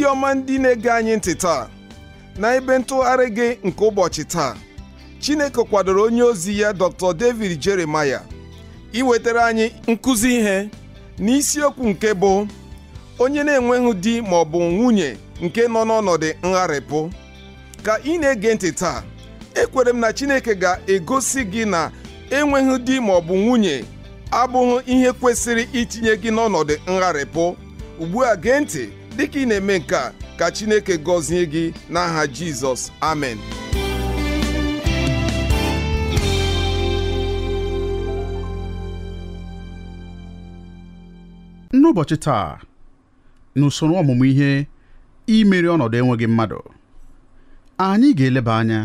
ndị ọma ndị na-ege anyị ntị taa na ebe ntụgharị gị nke ụbọchị taa Chineke kwadoro onye ozi ya Dr. David Jeremiah iwetara anyị nkụzi ihe n'isiokwu nke bụ onye na-enweghị di ma ọ bụ nwunye nke nọ n'ọnọdụ ngharịpụ ka ị na-ege ntị taa ekwere m na Chineke ga-egosi gị na enweghị di ma ọ bụ nwunye abụghị ihe kwesịrị itinye gị n'ọnọdụ ngharịpụ ugbu a gee ntị dịka ị na-eme nke a ka Chineke gọzie gị n'aha Jizọs amen n'ụbọchị taa n'usoro ọmụmụ ihe imeri ọnọdụ enweghị mmadụ anyị ga-eleba anya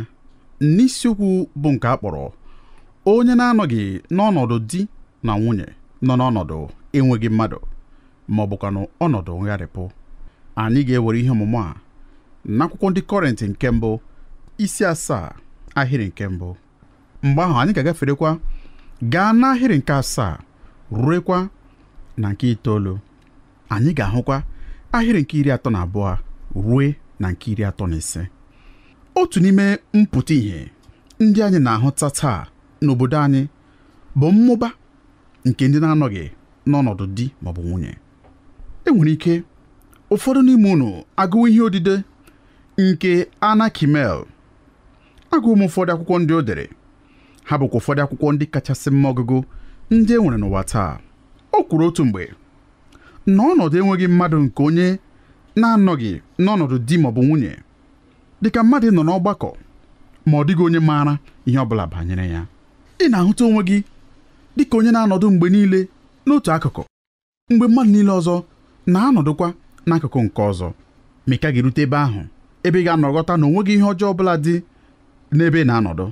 n'isiokwu bụ nke a kpọrọ onye na-anọghị n'ọnọdụ di na nwunye nọ n'ọnọdụ enweghị mmadụ ma ọ ọnọdụ ngharịpụ anyị ga-ewere ihe ọmụmụ a n'akwụkwọ ndị kọrentị nke mbụ isi asaa ahịrị nke mbụ mgbe ahụ anyị ga-agaferekwa gaa n'ahịrị nke asaa ruekwa na nke itoolu anyị ga-ahụkwa ahịrị nke iri atọ na abụọ rue na nke iri atọ na ise otu n'ime mpụta ìhè ndị anyị na-ahụta taa n'obodo anyị bụ mmụba nke ndị na-anọghị n'ọnọdụ di maọbụ nwunye enwere ike ụfọdụ n'ime unu agụwo ihe odide nke Anna Kimmel agụụ m ụfọdụ akwụkwọ ndị o dere ha bụkwa ụfọdụ akwụkwọ ndị kachasị mma ọgụgụ ndị e nwere n'ụwa taa o kwuru otu mgbe na ọnọdụ enweghị mmadụ nke onye na-anọghị n'ọnọdụ di maọbụ nwunye dịka mmadụ nọ n'ọgbakọ ma ọ dịghị onye maara ihe ọ bụla banyere ya ị na-ahụta onwe gị dịka onye na-anọdụ mgbe niile n'otu akụkụ mgbe mmadụ niile ọzọ na-anọdụkwa n'akụkụ nke ọzọ ma ị ka ga-erute ebe ahụ ebe ị ga-anọgọta na onweghị ihe ọjọọ ọbụla dị n'ebe ị na-anọdụ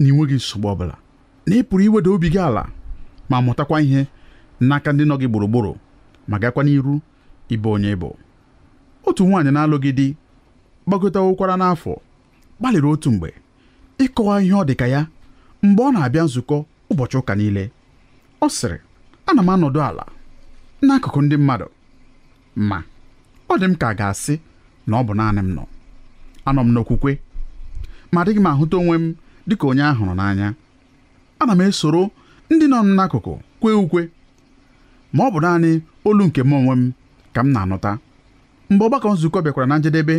na ịnweghị nsogbu ọbụla na ị pụrụ iweda obi gị ala ma mụtakwa ihe n'aka ndị nọ gị gburugburu ma gakwa n'iru ịbụ onye bụ otu nwaanyị na-alụghị di gbagọtawokwara n'afọ gbalịrị otu mgbe ịkọwa ihe ọ dị ka ya mgbe ọ na-abịa nzukọ ụbọchị ụka niile ọ sịrị ana m anọdụ ala n'akụkụ ndị mmadụ ma ọ dị m ka ga-asị na ọ bụ naanị m nọ anọ m n'okwukwe ma adịghị m ahụta onwe m dịka onye a hụrụ n'anya ana m esoro ndị nọ m n'akụkụ kwee ukwe ma ọ bụ naanị olu nke m onwe m ka m na-anụta mgbe ọgbakọ nzukọ bịakwara na njedebe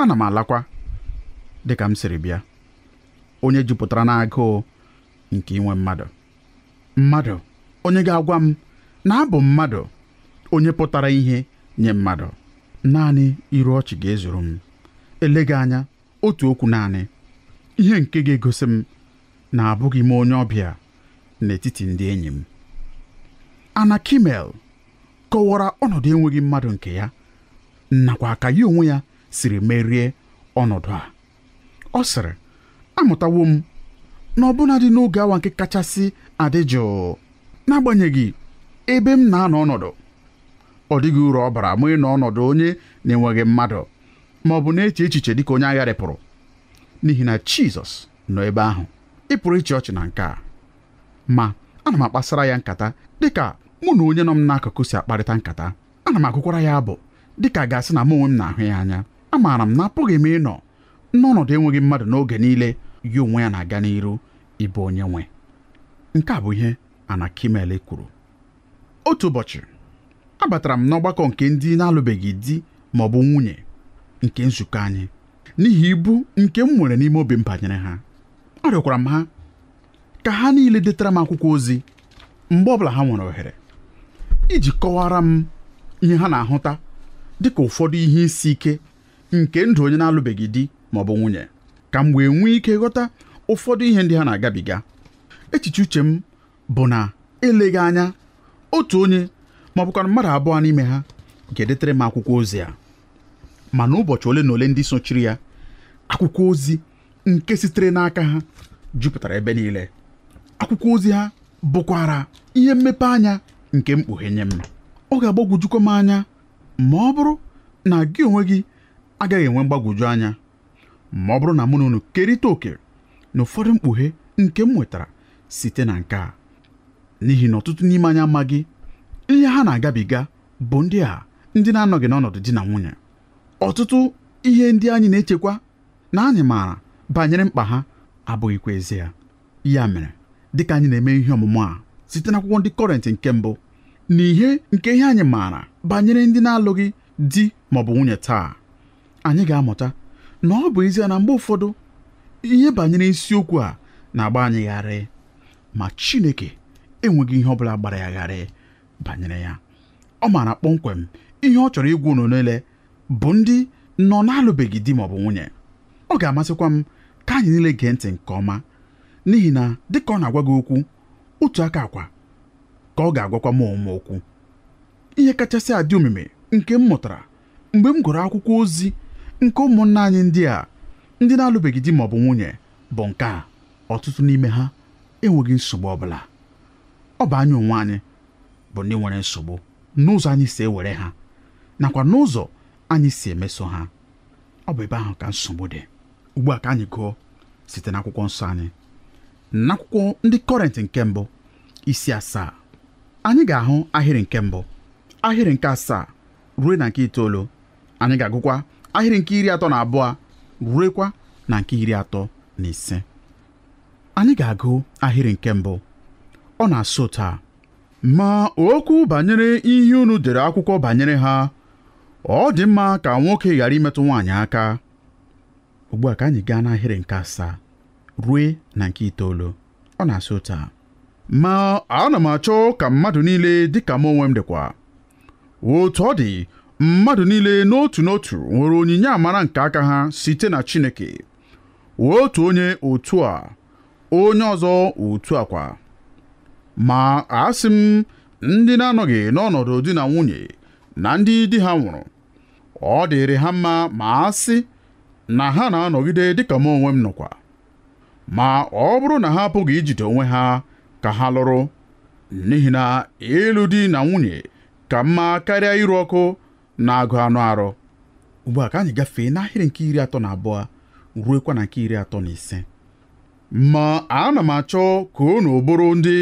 ana m alakwa dịka m siri bịa onye jupụtara n'agụụ nke inwe mmadụ mmadụ onye ga-agwa m na abụ mmadụ onye pụtara ihe nye mmadụ naanị iru ọchị ga-ezuru m eleghị anya otu okwu naanị ihe nke ga-egosi m na abụghị m onye ọbịa n'etiti ndị enyi m Anna kimel kọwara ọnọdụ enweghị mmadụ nke ya nakwa ka ya onwe ya siri merie ọnọdụ a ọ sịrị amụtawo m na dị n'oge awa nke kachasị adị jụụ n'agbanyeghị ebe m na-anọ ọnọdụ ọ dịghị uru ọ bara mụ ị nọ ọnọdụ onye na-enweghị mmadụ ma ọ bụ na-eche echiche dịka onye agha rịpụrụ. n'ihi na Jizọs nọ ebe ahụ ị pụrụ ịchị ọchị na nke a ma ana m akpasara ya nkata dịka mụ na onye nọ m n'akụkụ si akparịta nkata ana m agụkwara ya abụ dịka gasị na mụ onwe m na-ahụ ya anya amaara m na apụghị m ịnọ n'ọnọdụ enweghị mmadụ n'oge niile ya onwe ya na-aga n'iru ịbụ onye nwe nke a bụ ihe Anakimele kwuru otu ụbọchị abatara m n'ọgbakọ nke ndị na-alụbeghị di ma ọ bụ nwunye nke nzukọ anyị n'ihi ibu nke m nwere n'ime obi m banyere ha arịọkwara m ha ka ha niile detara m akwụkwọ ozi mgbe ọbụla ha nwere ohere iji kọwara m ihe ha na-ahụta dịka ụfọdụ ihe isi ike nke ndụ onye na-alụbeghị di ma ọ bụ nwunye ka m wee nwee ike ghọta ụfọdụ ihe ndị ha na-agabiga echiche uche m bụ na eleghị anya otu onye ma ọ bụkwa mmadụ abụọ n'ime ha ga-edetere m akwụkwọ ozi a mana ụbọchị ole na ole ndị sochiri ya akwụkwọ ozi nke sitere n'aka ha jupụtara ebe niile akwụkwọ ozi ha bụkwara ihe mmepe anya nke mkpughe nye m ọ ga-agbagwojukwa m anya ma ọ bụrụ na gị onwe gị agaghị enwe mgbagwoju anya ma ọ bụrụ na mụ na unu kerịta oke na ụfọdụ mkpughe nke m nwetara site na nke a n'ihi na ọtụtụ n'ime anyị amaghị ihe ha na-agabiga bụ ndị a ndị na-anọghị n'ọnọdụ di na nwunye ọtụtụ ihe ndị anyị na-echekwa na anyị maara banyere mkpa ha abụghịkwa ezie ya mere dịka anyị na-eme ihe ọmụmụ a site n'akwụkwọ ndị kọrentị nke mbụ na ihe nke ihe anyị maara banyere ndị na-alụghị di ma ọ bụ nwunye taa anyị ga-amụta na ọ bụ ezie na mgbe ụfọdụ ihe banyere isiokwu a na-agba anyị gharị ma Chineke enweghị ihe ọ bụla gbara ya gharị banyere ya ọ maara kpọmkwem ihe ọ chọrọ igwu unu niile bụ ndị nọ na-alụbeghị di maọbụ nwunye ọ ga-amasịkwa m ka anyị niile gee ntị nke ọma n'ihi na dịka ọ na-agwa gị okwu otu aka akwa ka ọ ga-agwakwa m ọmụma okwu ihe kachasị adị omume nke m mụtara mgbe m gụrụ akwụkwọ ozi nke ụmụnna anyị ndị a ndị na-alụbeghị di maọbụ nwunye bụ nke a ọtụtụ n'ime ha enweghị nsogbu ọ bụla ọ bụ anyị onwe anyị bụ ndị nwere nsogbu n'ụzọ anyị si ewere ha nakwa n'ụzọ anyị si emeso ha ọ bụ ebe ahụ ka nsogbu dị ugbu a ka anyị gụọ site n'akwụkwọ nsọ anyị n'akwụkwọ ndị kọrent nke mbụ isi asaa anyị ga-ahụ ahịrị nke mbụ ahịrị nke asaa ruo na nke itoolu anyị ga-agụkwa ahịrị nke iri atọ na abụọ ruekwa na nke iri atọ na ise anyị ga-agụ ahịrị nke mbụ ọ na-asụ taa ma okwu banyere ihe unu dere akwụkwọ banyere ha ọ dị mma ka nwoke ghara imetụ nwaanyị aka ugbu a ka anyị gaa n'ahịrị nke asaa rue na nke itoolu ọ na-asị ụta a ma ana m achọ ka mmadụ niile dịka m onwe m dịkwa otu ọ dị mmadụ niile n'otu n'otu nwere onyinye amara nke aka ha site na Chineke otu onye otu a onye ọzọ otu a kwa ma asị m ndị na-anọghị n'ọnọdụ di na nwunye na ndị di ha nwụrụ ọ dịrị ha mma ma asị na ha na-anọgide dịka m onwe m nọkwa ma ọ bụrụ na ha apụghị ijide onwe ha ka ha lụrụ n'ihi na ịlụ di na nwunye ka mma karịa iru ọkụ na-agụ anụ arụ ugbu a ka anyị gafee n'ahịrị nke iri atọ na abụọ ruekwa na nke iri atọ na ise ma ana m achọ ka unu bụrụ ndị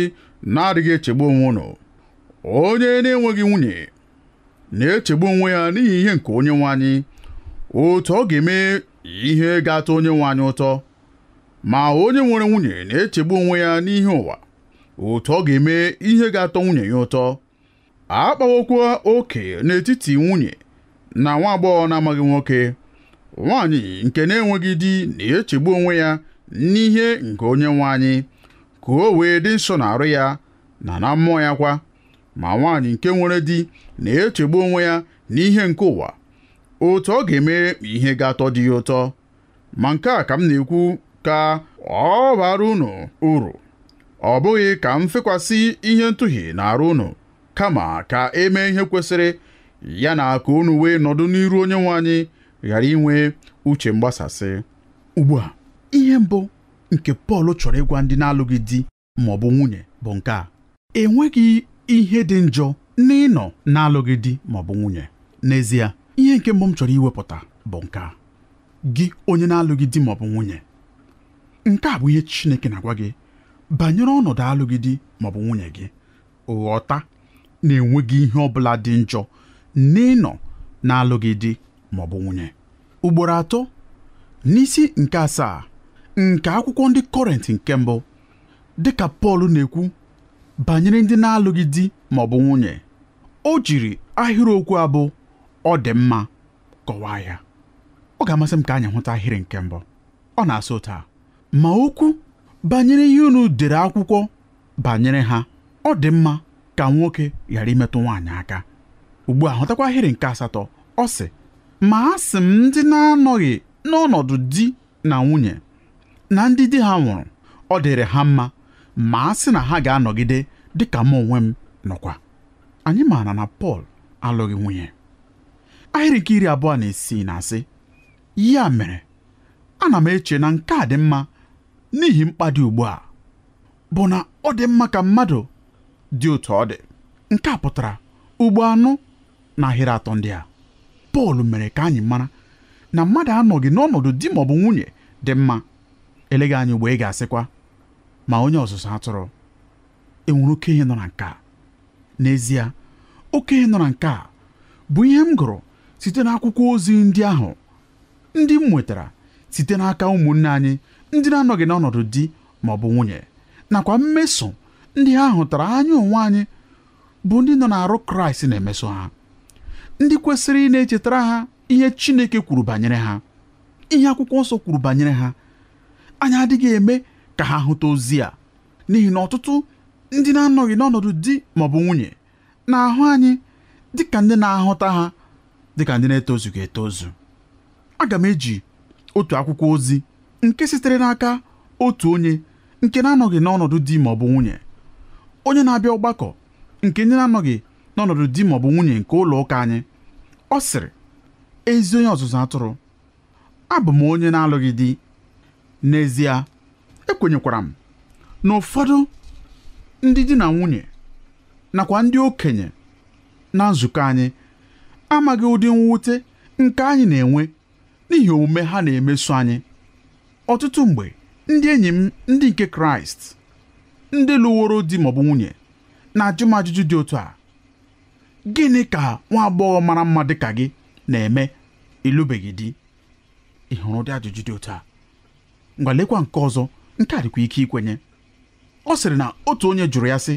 na-adịghị echegbu onwe unu onye na-enweghị nwunye na-echegbu onwe ya n'ihi ihe nke onye nwe anyị otu ọ ga-eme ihe ga-atọ onye nwe anyị ụtọ ma onye nwere nwunye na-echegbu onwe ya n'ihe ụwa otu ọ ga-eme ihe ga-atọ nwunye ya ụtọ akpawokwa oke n'etiti nwunye na nwa agbọghọ na-amaghị nwoke nwanyị nke na-enweghị di na-echegbu onwe ya n'ihe nke onye nwe anyị ka o wee dị nsọ na-arụ ya na na mmụọ ya kwa ma nwaanyị nke nwere di na-echegbu onwe ya n'ihe nke ụwa otu ọ ga-eme ihe ga-atọ dị ya ụtọ ma nke a ka m na-ekwu ka ọ bara unu uru ọ bụghị ka m fekwasị ihe ntụhi na arụ unu kama ka emee ihe kwesịrị ya na ka unu wee nọdụ n'iru onye nwe anyị ghara inwe uche mgbasasị ugbu a ihe mbụ nke Pọl chọrọ ịgwa ndị na-alụghị di ma ọ bụ nwunye bụ nke a enweghị ihe dị njọ na ịnọ na-alụghị di ma ọ bụ nwunye n'ezie ihe nke mbụ m chọrọ iwepụta bụ nke a gị onye na-alụghị di ma ọ bụ nwunye nke a bụ ihe Chineke na-agwa gị banyere ọnọdụ alụghị di ma ọ bụ nwunye gị ghọta na-enweghị ihe ọ bụla dị njọ n'ịnọ na-alụghị di ma ọ bụ nwunye ugboro atọ n'isi nke asaa nke akwụkwọ ndị kọrent nke mbụ dịka Pọl na-ekwu banyere ndị na-alụghị di ma ọ bụ nwunye o jiri ahịrịokwu abụ ọ dị mma kọwaa ya ọ ga-amasị m ka anyị hụta ahịrị nke mbụ ọ na-asụ taa ma okwu banyere ihe unu dere akwụkwọ banyere ha ọ dị mma ka nwoke ghara imetụ nwaanyị aka ugbu a hụtakwa ahịrị nke asatọ ọ sị ma a sị m ndị na-anọghị n'ọnọdụ di na nwunye na ndị di ha nwụrụ ọ dịrị ha mma ma a sị na ha ga-anọgide dị ka m onwe m nọkwa anyị maara na Pọl alụghị nwunye ahịrị nke iri abụọ na isii na asị ya mere ana m eche na nke a dị mma n'ihi mkpa dị ugbu a bụ na ọ dị mma ka mmadụ dị otu ọ dị nke a pụtara ugbo anụ na ahịrị atọ ndị a Pọl mere ka anyị mara na mmadụ anọghị n'ọnọdụ di ma ọ bụ nwunye dị mma eleghị anya mgbe ị ga-asịkwa ma onye ọzụzụ atụrụ enwere ihe nọ na nke a n'ezie okenye nọ na nke a bụ ihe m gụrụ site n'akwụkwọ ozi ndị ahụ ndị m nwetara site n'aka ụmụnne anyị ndị na-anọghị n'ọnọdụ di ma ọ bụ nwunye nakwa mmeso ndị ha hụtara anyị onwe anyị bụ ndị nọ n'arụ kraịst na-emeso ha ndị kwesịrị ị na-echetara ha ihe chineke kwuru banyere ha ihe akwụkwọ nsọ kwuru banyere ha anyị adịghị eme ka ha hụta ozi a n'ihi na ọtụtụ ndị na-anọghị n'ọnọdụ di ma bụ nwunye na-ahụ anyị dịka ndị na-ahụta ha dịka ndị na-etozughị etozu aga m eji otu akwụkwọ ozi nke sitere n'aka otu onye nke na-anọghị n'ọnọdụ di ma bụ nwunye onye na-abịa ọgbakọ nke ndị na-anọghị n'ọnọdụ di maọbụ nwunye nke ụlọ ụka anyị ọ sịrị ezi onye ọzụzụ atụrụ abụ m onye na-alụghị di n'ezie ekwenyekwara m na ụfọdụ ndị di na nwunye nakwa ndị okenye na nzukọ anyị amaghị ụdị mwute nke anyị na-enwe n'ihi omume ha na-emeso anyị ọtụtụ mgbe ndị enyi m ndị nke kraịst ndị lụworo di maọbụ nwunye na-ajụ m ajụjụ dị otu a gịnị ka nwa agbọghọ mara mma dị ka gị na-eme ịlụbeghị di ịhụrụ dị ajụjụ dị otu a ngwa lekwa nke ọzọ nke a dịkwa ike ikwenye ọ sịrị na otu onye jụrụ ya sị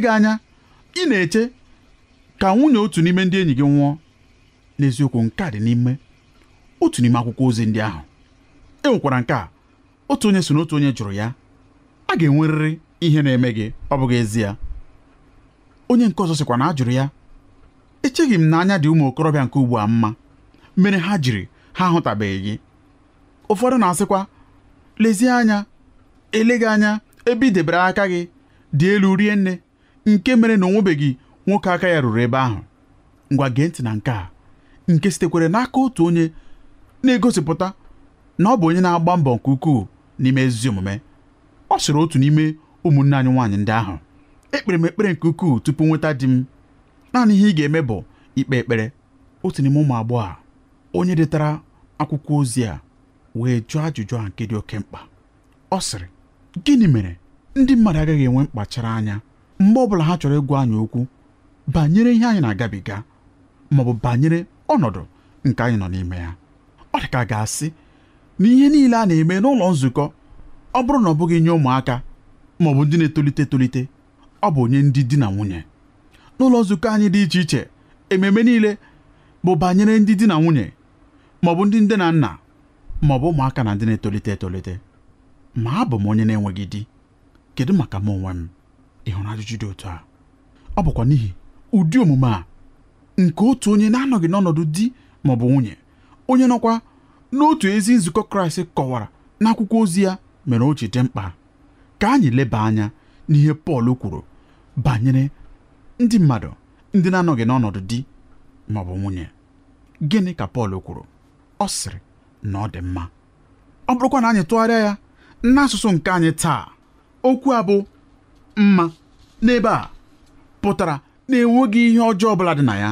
gị anya ị na-eche ka nwunye otu n'ime ndị enyi gị nwụọ n'eziokwu nke dị n'ime otu n'ime akwụkwọ ozi ndị ahụ e nwekwara nke a otu onye so n'otu onye jụrụ ya a ga-enwerịrị ihe na-eme gị ọ bụghị ezie onye nke ọzọ sịkwa na a jụrụ ya echeghị m na anya dị ụmụ okorobịa nke ugbu a mma mere ha jiri ha ahụtabeghị gị ụfọdụ na-asịkwa lezie anya ele gị anya ebe i debere aka gị dị elu rie nne nke mere na onwebeghị nwoke aka ya ruru ebe ahụ ngwa gee ntị na nke a nke sitekwere n'aka otu onye na-egosipụta na ọ bụ onye na-agba mbọ nke ukwuu n'ime ezi omume ọ sịrị otu n'ime ụmụnne anyị nwaanyị ndị ahụ ekpere m ekpere nke ukwuu tupu nweta di m naanị ihe ị ga-eme bụ ikpe ekpere otu n'ime ụmụ agbọghọ onye detara akwụkwọ ozi a wee jụọ ajụjụ a nke dị oke mkpa ọ sịrị gịnị mere ndị mmadụ agaghị enwe mkpachara anya mgbe ọ bụla ha chọrọ ịgwa anyị okwu banyere ihe anyị na-agabiga ma ọ bụ banyere ọnọdụ nke anyị nọ n'ime ya ọ dị ka ga-asị na ihe niile a na-eme n'ụlọ nzukọ ọ bụrụ na ọ bụghị nye ụmụaka maọbụ bụ ndị na-etolite etolite ọ bụ onye ndị di na nwunye n'ụlọ nzukọ anyị dị iche iche ememe niile bụ banyere ndị di na nwunye ma ọ bụ ndị nde na nna ma ọ bụ ụmụaka na ndị na-etolite etolite ma abụ m onye na-enweghị di kedu maka m onwe m ị ajụjụ dị otu a ọ bụkwa n'ihi ụdị omume a nke otu onye na-anọghị n'ọnọdụ di ma ọ bụ nwunye onye nọkwa n'otu ezi nzukọ kraịst kọwara n'akwụkwọ ozi ya mere o ji dị mkpa ka anyị leba anya n'ihe pọl kwuru banyere ndị mmadụ ndị na-anọghị n'ọnọdụ di ma ọ bụ nwunye gịnị ka pọl kwuru ọ sịrị na ọ dị mma ọ bụrụkwa na anyị tụgharịa ya n'asụsụ nke anyị taa okwu a bụ mma n'ebe a pụtara na enweghị ihe ọjọọ ọbụla dị na ya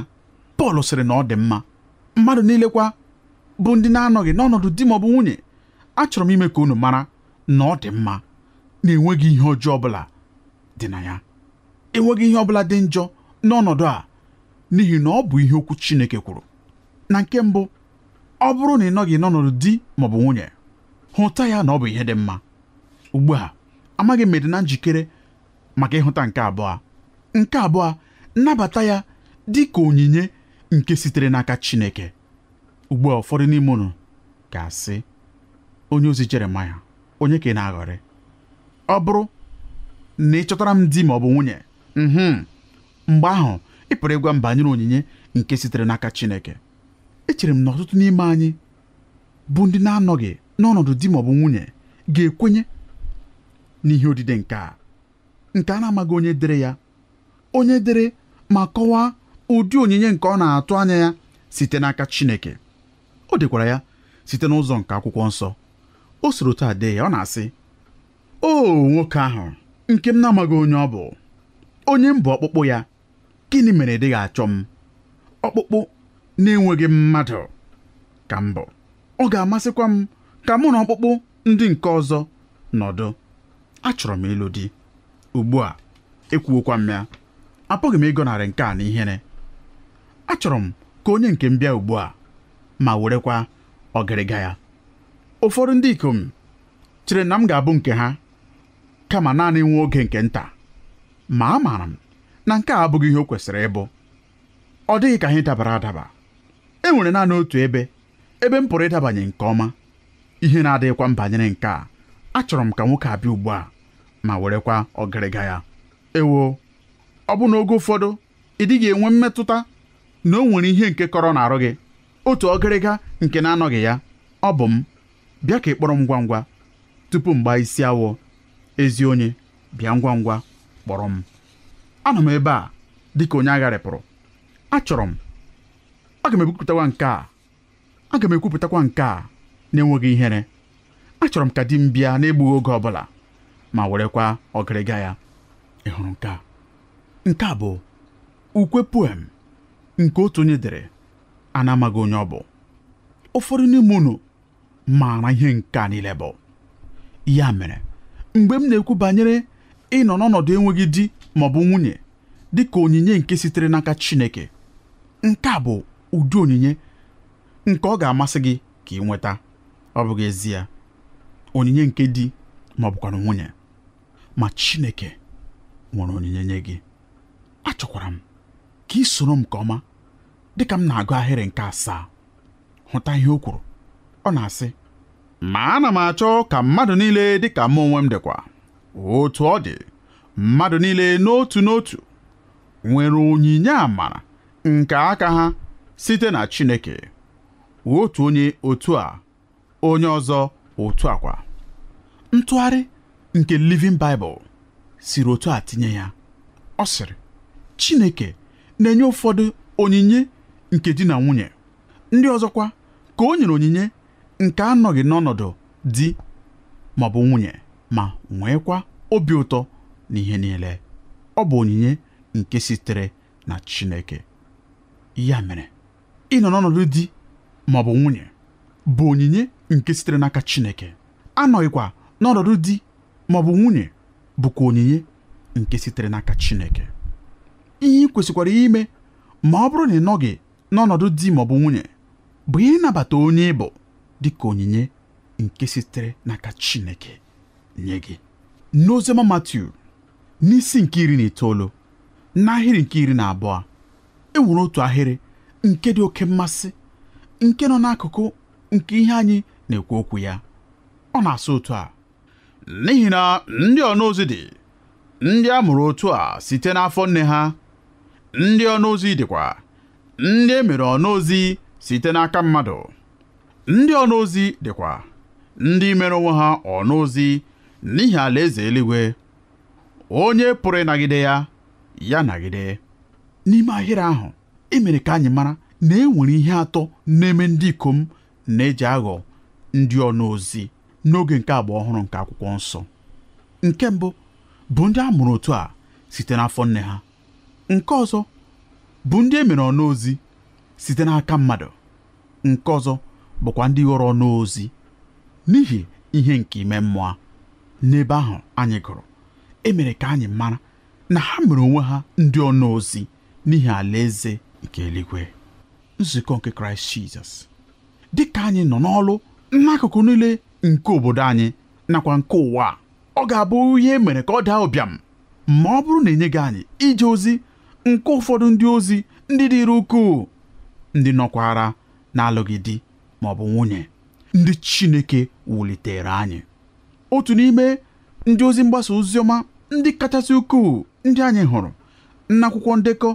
Pọl sịrị na ọ dị mma mmadụ niile kwa bụ ndị na-anọghị n'ọnọdụ di ma ọ bụ nwunye achọrọ m ime ka unu mara na ọ dị mma na enweghị ihe ọjọọ ọbụla dị na ya enweghị ihe ọbụla dị njọ n'ọnọdụ a n'ihi na ọ bụ ihe okwu Chineke kwuru na nke mbụ ọ bụrụ na ị nọghị n'ọnọdụ di maọbụ nwunye hụta ya na ọ bụ ihe dị mma ugbu a amaghị m dị na njikere maka ịhụta nke abụọ nke abụọ nnabata ya dị ka onyinye nke sitere n'aka Chineke ugbu a ụfọdụ n'ime unu ga-asị onye ozi Jeremaya onye ka ị na-aghọrị ọ bụrụ na ị chọtara m di ma ọ bụ nwunye mhm, mgbe ahụ ị pụrụ ịgwa m banyere onyinye nke sitere n'aka Chineke echere m na ọtụtụ n'ime anyị bụ ndị na-anọghị n'ọnọdụ di ma ọ bụ nwunye ga-ekwenye n'ihe odide nke a nke a na-amaghị onye dere ya onye dere ma kọwaa ụdị onyinye nke ọ na-atụ anya ya site n'aka Chineke o dekwara ya site n'ụzọ nke akwụkwọ nsọ o soro taa dee ya ọ na-asị o nwoke ahụ nke m na-amaghị onye ọ bụ onye m bụ ọkpụkpụ ya gịnị mere ị dịghị achọ m ọkpụkpụ na-enweghị mmadụ ka mbụ ọ ga-amasịkwa m ka mụ na ọkpụkpụ ndị nke ọzọ nọdụ achọrọ m ịlụ di ugbu a ekwuokwa m ya apụghị m ịgọnarị nke a na ihere achọrọ m ka onye nke m bịa ugbu a ma werekwa ọgịrịga ya ụfọdụ ndị ikom chere na m ga-abụ nke ha kama naanị nwa oge nke nta ma amaara m na nke a abụghị ihe o kwesịrị ịbụ ọ dịghị ka ihe dabara adaba enwere naanị otu ebe ebe m pụrụ ịdabanye nke ọma ihe na-adịghịkwa m banyere nke a achọrọ m ka nwoke abịa ugbu a ma werekwa ọgịrịga ya ewo ọ bụ na oge ụfọdụ ị dịghị enwe mmetụta na o nwere ihe nke kọrọ na-arụ gị otu ọgịrịga nke na-anọghị ya ọ bụ m bịa ka ị kpọrọ m ngwa ngwa tupu m gbaa isi awọ ezi onye bịa ngwa ngwa kpọrọ m anọ m ebe a dịka onye agharịpụrụ achọrọ m aga m ekwupụtakwa nke a aga m ekwupụtakwa nke a na-enweghị ihere achọrọ m ka di m bịa n'egbughị oge ọbụla ma werekwa ọgịrịga ya ị hụrụ nke a nke a bụ ukwe poem nke otu onye dere a onye ọ bụ ụfọdụ n'ime unu maara ihe nke a niile bụ ya mere mgbe m na-ekwu banyere ịnọ n'ọnọdụ enweghị di ma ọ bụ nwunye dị ka onyinye nke sitere n'aka Chineke nke a bụ ụdị onyinye nke ọ ga-amasị gị ka ị nweta ọ bụghị ezie onyinye nke di ma ọ bụkwara nwunye ma Chineke nwere onyinye nye gị achọkwara m ka ị soro m nke ọma dịka m na-agụ ahịrị nke asaa hụta ihe o kwuru ọ na-asị ma ana m achọ ka mmadụ niile dịka m onwe m dịkwa otu ọ dị mmadụ niile n'otu n'otu nwere onyinye amara nke aka ha site na Chineke otu onye otu a onye ọzọ otu akwa ntụgharị nke Living Bible siri otu a tinye ya ọ sịrị Chineke na-enye ụfọdụ onyinye nke di na nwunye ndị ọzọkwa ka o nyere onyinye nke anọghị n'ọnọdụ di ma ọ bụ nwunye ma nweekwa obi ụtọ na ihe niile ọ bụ onyinye nke sitere na Chineke ya mere ịnọ n'ọnọdụ di ma ọ bụ nwunye bụ onyinye nke sitere n'aka Chineke anọghịkwa n'ọnọdụ di ma ọ bụ nwunye bụkwa onyinye nke sitere n'aka Chineke ihe ị kwesịkwara ime ma ọ bụrụ na ị nọghị n'ọnọdụ di ma ọ bụ nwunye bụ ịnabata onye ịbụ dị ka onyinye nke sitere n'aka Chineke nye gị n'oziọma Matiu n'isi nke iri na itoolu n'ahịrị nke iri na abụọ e nwere otu ahịrị nke dị oke mmasị nke nọ n'akụkụ nke ihe anyị na-ekwu okwu ya ọ na-asụ otu a n'ihi na ndị ọnaozi dị ndị a mụrụ otu a site n'afọ nne ha ndị ọnaozi dịkwa ndị e mere ọnaozi site n'aka mmadụ ndị ọnaozi dịkwa ndị mere onwe ha ọnaozi n'ihi alaeze eluigwe onye pụrụ ịnagide ya ya nagide n'ime ahịrị ahụ emere ka anyị mara na e nwere ihe atọ na-eme ndị ikom na-eji aghọ ndị ọnụ ozi n'oge nke agba ọhụrụ nke akwụkwọ nsọ nke mbụ bụ ndị a mụrụ otu a site n'afọ nne ha nke ọzọ bụ ndị e mere ọnụ ozi site n'aka mmadụ nke ọzọ bụkwa ndị ghọrọ ọnụ ozi n'ihi ihe nke ime mmụọ n'ebe ahụ anyị gụrụ emere ka anyị mara na ha mere onwe ha ndị ọnụ ozi n'ihi alaeze nke eluigwe nzukọ nke kraịst jizọs dị ka anyị nọ n'ọlụ n'akụkụ niile nke obodo anyị nakwa nke ụwa ọ ga-abụ ihe e mere ka ọ daa ụbịam ma ọ bụrụ na enyeghị anyị ije ozi nke ụfọdụ ndị ozi ndị dịrị ukwuu ndị nọkwara na-alụghị di ma ọ bụ nwunye ndị chineke wulitere anyị otu n'ime ndị ozi mgbasa ozi ọma ndị kachasị ukwuu ndị anyị hụrụ n'akwụkwọ ndekọ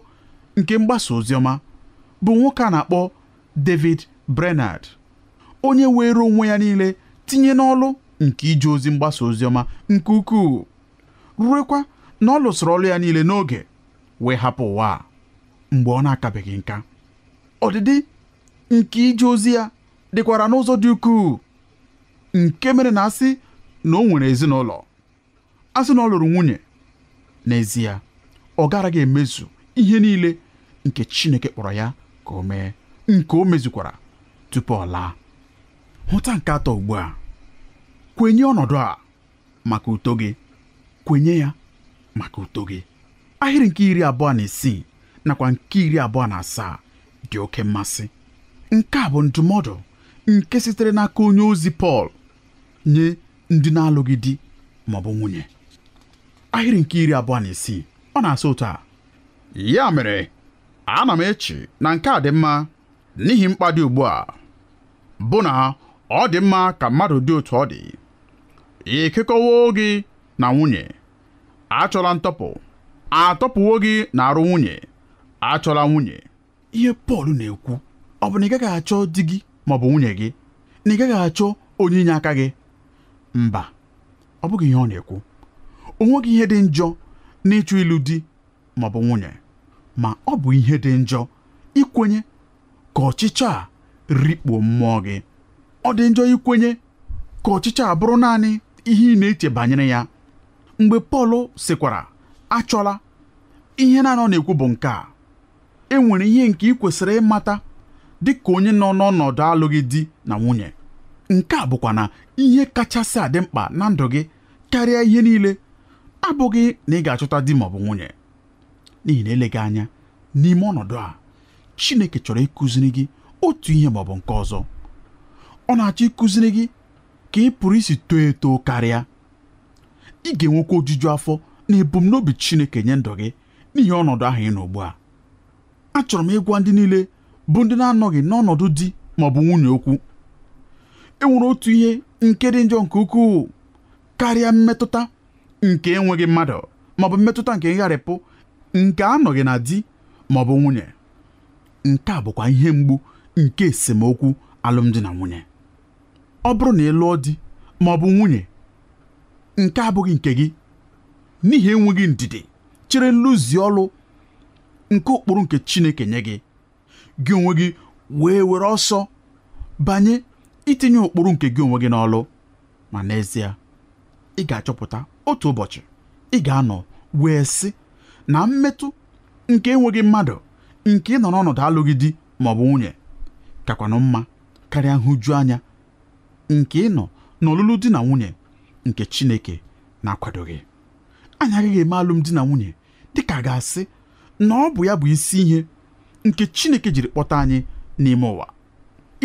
nke mgbasa oziọma bụ nwoke a na-akpọ David Brenard onye were onwe ya niile tinye n'ọlụ nke ije ozi mgbasa ozi ọma nke ukwuu ruekwa na ọ lụsịrị ọlụ ya niile n'oge wee hapụ ụwa mgbe ọ na-akabeghị nka ọdịdị nke ije ozi ya dịkwara n'ụzọ dị ukwuu nke mere na asị na o nwere ezinụlọ asị na ọ lụrụ nwunye n'ezie ọ garaghị emezu ihe niile nke Chineke kpọrọ ya ka o mee nke o mezukwara tupu ọ laa hụta nke atọ ugbu a kwenye ọnọdụ a maka uto gị kwenye ya maka uto gị ahịrị nke iri abụọ na isii nakwa nke iri abụọ na asaa dị oke mmasị nke a bụ ndụmọdụ nke sitere n'aka onye ozi Pọl nye ndị na-alụghị di ma ọ bụ nwunye ahịrị nke iri abụọ na isii ọ na-asa ụtọ a ya mere ana m eche na nke a dị mma n'ihi mkpa dị ugbu a bụ na ọ dị mma ka mmadụ dị otu ọ dị ịkekọwo gị na nwunye achọla ntọpụ atọpụwo gị na arụ nwunye achọla nwunye ihe Pọl na-ekwu ọ bụ na ị gaghị achọ di gị ma ọ bụ nwunye gị na ị gaghị achọ onye inye aka gị mba ọ bụghị ihe ọ na-ekwu o nweghị ihe dị njọ n'ịchụ ịlụ di maọbụ nwunye ma ọ bụ ihe dị njọ ikwenye ka ọchịchọ a rikpo mmụọ gị ọ dị njọ ikwenye ka ọchịchọ a bụrụ naanị ihe ị na-eche banyere ya mgbe Pọl sịkwara achọla ihe na-anọ na-ekwu bụ nke a e nwere ihe nke ị kwesịrị ịmata dị ka onye nọ n'ọnọdụ alụghị di na nwunye nke a bụkwa na ihe kachasị adị mkpa na ndụ gị karịa ihe niile abụghị na ị ga-achọta di maọbụ nwunye n'ihi na eleghị anya n'ime ọnọdụ a Chineke chọrọ ịkụziri gị otu ihe maọbụ nke ọzọ ọ na-achọ ịkụziri gị ka ị pụrụ isi too eto karịa ị ga-enwekwa ojuju afọ na ebumnobi Chineke nye ndụ gị n'ihi ọnọdụ ahụ ị nọ ugbu a achọrọ m ịgwa ndị niile bụ ndị na-anọghị n'ọnọdụ di maọbụ nwunye okwu e nwere otu ihe nke dị njọ nke ukwuu karịa mmetụta nke enweghị mmadụ maọbụ mmetụta nke ngharịpụ nke anọghị na di maọbụ nwunye nke a bụkwa ihe mgbu nke esemokwu alụmdi na nwunye ọ bụrụ na ị lụọ di maọbụ nwunye nke abụghị nke gị n'ihi enweghị ndidi chere nlụzi ọlụ nke ụkpụrụ nke Chineke nye gị gị onwe gị wee were ọsọ banye itinye ụkpụrụ nke gị onwe gị n'ọlụ ma n'ezie ị ga-achọpụta otu ụbọchị ị ga-anọ wee sị na mmetụ nke enweghị mmadụ nke ịnọ n'ọnọdụ alụghị di ma ọ bụ nwunye kakwanụ mma karịa nhụju anya nke ịnọ n'ọlụlụ di na nwunye nke Chineke na-akwadoghị anyị agaghị eme alụmdi na nwunye dịka ka ga-asị na ọ bụ ya bụ isi ihe nke Chineke jiri kpọta anyị n'ime ụwa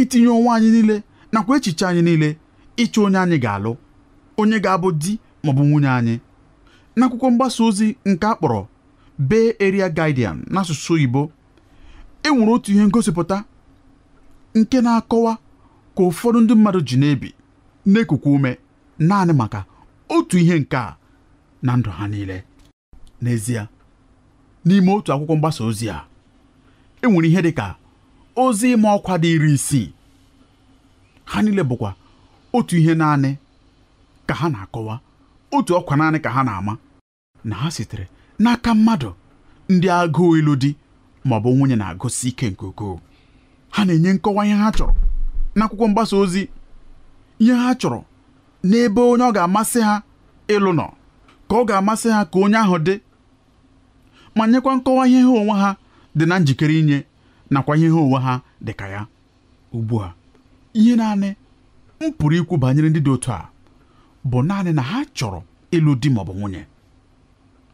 itinye onwe anyị niile nakwa echiche anyị niile ịchọ onye anyị ga-alụ onye ga-abụ di maọbụ nwunye anyị n'akwụkwọ mgbasa ozi nke a kpọrọ Bay Area Guardian n'asụsụ Igbo enwere otu ihe ngosipụta nke na-akọwa ka ụfọdụ ndị mmadụ ji na-ebi ume naanị maka otu ihe nke a na ndụ ha niile n'ezie n'ime otu akwụkwọ mgbasa ozi a enwere ihe dị ka ozi ịma ọkwa dị iri isii ha niile bụkwa otu ihe naanị ka ha na-akọwa otu ọkwa naanị ka ha na-ama na ha sitere n'aka mmadụ ndị agụụ ilu di maọbụ nwunye na-agụsi ike nke ukwuu ha na-enye nkọwa ihe ha chọrọ n'akwụkwọ mgbasa ozi ihe ha chọrọ n'ebe onye ọ ga-amasị ha ịlụ nọ ka ọ ga-amasị ha ka onye ahụ dị ma nyekwa nkọwa ihe ha onwe ha dị na njikere inye nakwa ihe ha onwe ha dị ka ya ugbu a ihe naanị m pụrụ ikwu banyere ndị dị otu a bụ naanị na ha chọrọ ịlụ di maọbụ nwunye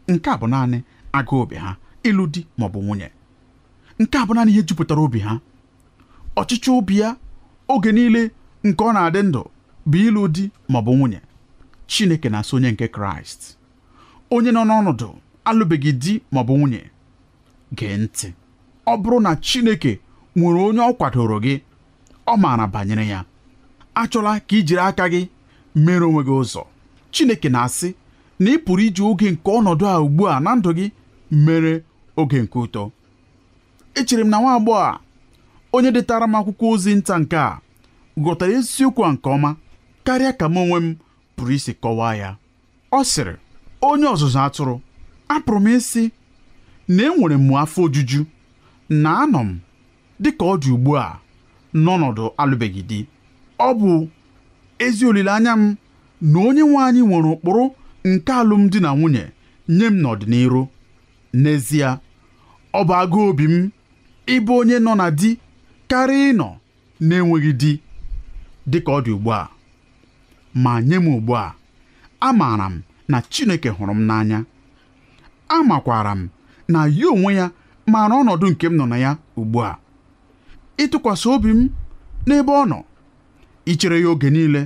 nke a bụ naanị agụ obi ha ịlụ di bụ nwunye nke a bụ naanị ihe jupụtara obi ha ọchịchọ obi ya oge niile nke ọ na-adị ndụ bụ ịlụ di maọbụ nwunye Chineke na-asị onye nke Kraịst onye nọ n'ọnọdụ alụbeghị di maọbụ nwunye gee ntị ọ bụrụ na Chineke nwere onye ọ kwadoro gị ọ maara banyere ya achọla ka i jiri aka gị mere onwe gị ụzọ Chineke na-asị na ị pụrụ iji oge nke ọnọdụ a ugbu a na ndụ gị mere oge nke ụtọ echere m na nwa agbọghọ a onye detara m akwụkwọ ozi nta nke a ghọtara eziokwu a nke ọma karịa ka m onwe m pụrụ isi kọwaa ya ọ sịrị onye ọzụzụ atụrụ apụrụ m isi na enwere m afọ ojuju na anọ m dịka ọ dị ugbu a n'ọnọdụ alụbeghị di ọ bụ ezi olileanya m na onye nwe anyị nwere ụkpụrụ nke alụmdi na nwunye nye m n'ọdịnihu n'ezie ọ bụ agụ obi m ịbụ onye nọ na di karịa ịnọ na-enweghị di dịka ọ dị ugbu a ma nye m ugbu a amaara m na Chineke hụrụ m n'anya amakwara m na ya onwe ya maara ọnọdụ nke m nọ na ya ugbu a ịtụkwasị obi m n'ebe ọ nọ ichere ya oge niile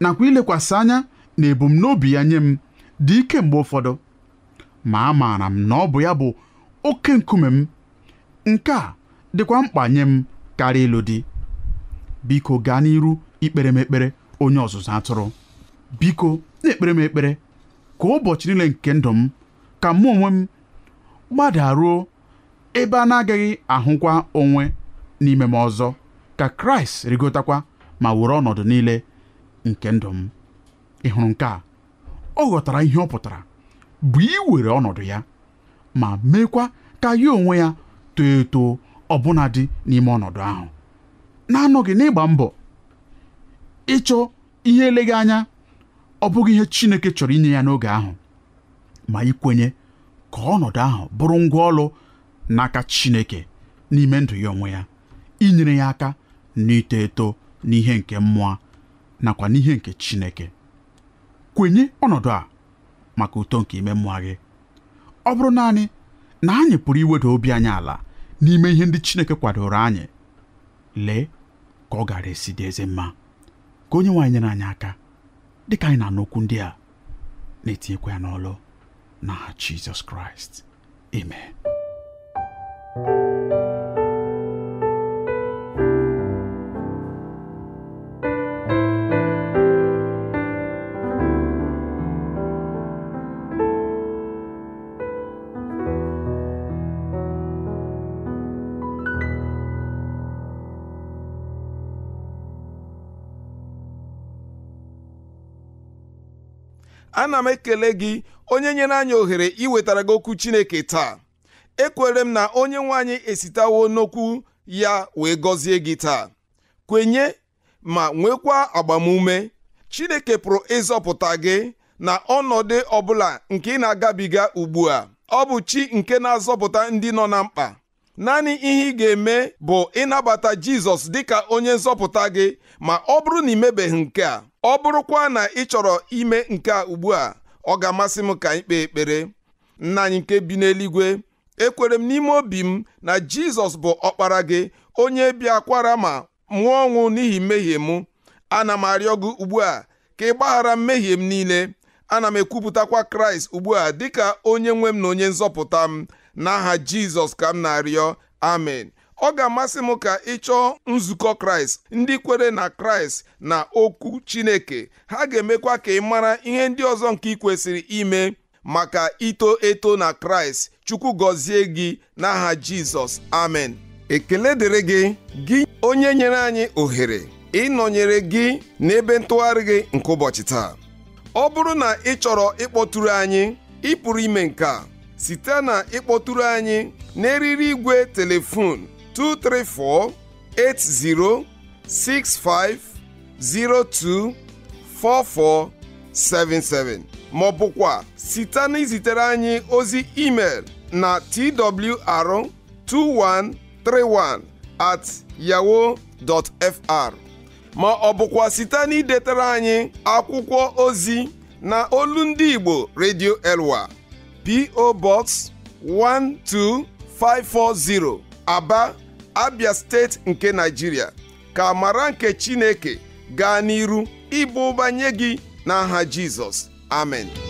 nakwa ilekwasị anya na ebumnobi ya nye m dị ike mgbe ụfọdụ ma amaara m na ọ bụ ya bụ oke nkume m nke a dịkwa mkpa nye m karịa ịlụ di biko gaa n'iru ikpere m ekpere onye ọzụzụ atụrụ biko na-ekpere m ekpere ka ụbọchị niile nke ndụ m ka mụ onwe m gbadaruo ebe a na-agaghị ahụkwa onwe n'ime m ọzọ ka kraịst rigotakwa ma were ọnọdụ niile nke ndụ m ị hụrụ nke a ọ ghọtara ihe ọ pụtara bụ iwere ọnọdụ ya ma meekwa ka ya onwe ya too eto ọbụna dị n'ime ọnọdụ ahụ na-anọghị n'ịgba mbọ ịchọ ihe eleghị anya ọ bụghị ihe Chineke chọrọ inye ya n'oge ahụ ma ikwenye ka ọnọdụ ahụ bụrụ ngwa ọlụ n'aka Chineke n'ime ndụ ya onwe ya inyere ya aka n'ito eto n'ihe nke mmụọ nakwa n'ihe nke Chineke kwenye ọnọdụ a maka uto nke ime mmụọ gị ọ bụrụ naanị na anyị pụrụ iweda obi anyị ala n'ime ihe ndị Chineke kwadoro anyị lee ka ọ gara esi dị eze mma ka onye nwaanyị nyere anyị aka dị ka anyị na-anụ ndị a na-etinyekwa ya n'ọlụ na Jizọs Kraịst amen ana m ekele gị onye nyere anyị ohere iwetara gị okwu chineke taa ekwere m na onye nwe anyị esitawo n'okwu ya wee gọzie gị taa kwenye ma nwekwa agbamume chineke pụrụ ịzọpụta gị na ọnọdụ ọbụla nke ị na-agabiga ugbu a ọ bụ chi nke na-azọpụta ndị nọ na mkpa naanị ihe ị ga-eme bụ ịnabata jizọs dịka onye nzọpụta gị ma ọ bụrụ na ị mebeghị nke a ọ bụrụkwa na ị chọrọ ime nke a ugbu a ọ ga-amasị m ka anyị kpee ekpere nna anyị nke bi n'eluigwe ekwere m n'ime obi m na jizọs bụ ọkpara gị onye bịakwara ma nwụọ ọnwụ n'ihi mmehie mụ ana m arịọ gị ugbu a ka ị gbaghara mmehie m niile ana m ekwupụtakwa kraịst ugbu a dịka onye nwe m na onye nzọpụta m n'aha jizọs ka m na-arịọ amen ọ ga-amasị m ka ị chọọ nzukọ kraịst ndị kwere na kraịst na okwu chineke ha ga-emekwa ka ị mara ihe ndị ọzọ nke ị kwesịrị ime maka ito eto na kraịst chukwu gọzie gị n'aha jizọs amen ekele dịrị gị gị onye nyere anyị ohere ịnọnyere gị n'ebe ntụgharị gị nke ụbọchị taa ọ bụrụ na ị chọrọ ịkpọtụrụ anyị ị pụrụ ime nke a site na ịkpọtụrụ anyị n'eriri igwe telefon 234 80 65 maọbụkwa ma ọ bụkwa site na izitere anyị ozi email na twr2131 at yahoo dot fr ma ọ bụkwa site na anyị akwụkwọ ozi na olu ndị Igbo Radio Elwa PO Box 12540 Aba abia steeti nke naijiria ka amara nke chineke gaa n'iru ịba ụba nye gị n'aha jizọs amen